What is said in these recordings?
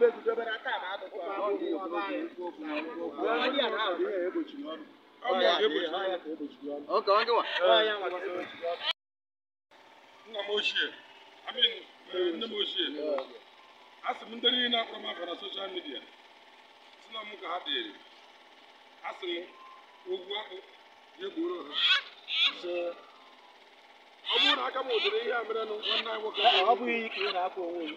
Okay, one, one. Nna m ochie, I mean, nne m ochie, a sị m ndị niile akpọrọ m afọ na soshal midia, si na m ka ha dịrị, a sị m ogwu akpụ ya egboro ha. Ọ bụrụ na aka m ụdịrị ihe a merenụ nwanne anyị nwoke. Ọ bụghị iyi ị na-akpọ onwe gị.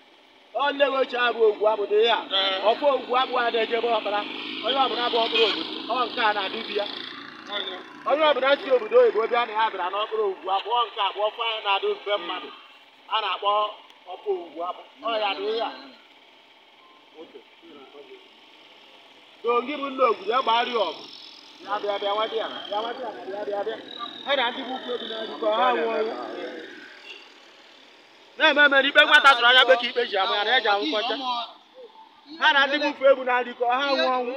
onye nwe ochie abụ ogwu abụdo ihe a ọkwa ogwu abụghị a na-ejebe eje ọkpara onye ọbụla bụ ọkpụrụ obodo ọ nke a na-adị ya onye ọbụla si obodo oyibo bịa na ya bịara n'ọkpụrụ ogwu abụọ nke abụọ kwa ya na-adị mfe mmadụ a na-akpọ ọkpa ogwu abụ ọ ya dị ya. a dongi bụ nna obodo ya gbara ọgụ ya bịa bịa nwa di ya bịa nwa di ya bịa bịa bịa ha na ndị bụ ukwu ebi na-adịkọ ha nwụọ na-ememe n'ikpe nwata tụrụ anya bekee ikpe ji ama ya na eji anwụ ha na ndị bụfe egwu na adịkọ ha nwụ ọnwụ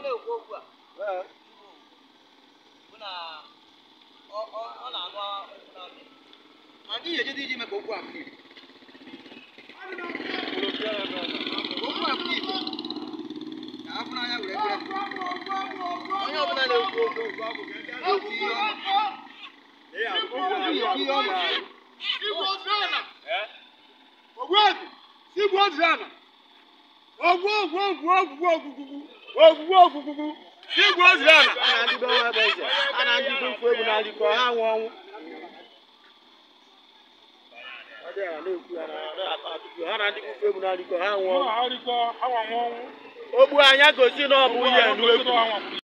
onye ọbụla na ogwuegwu igwu ozuana ogwu ogwu a na ọnwa a ha na ụkwụ ha ọnwụ ogbu anya gosi na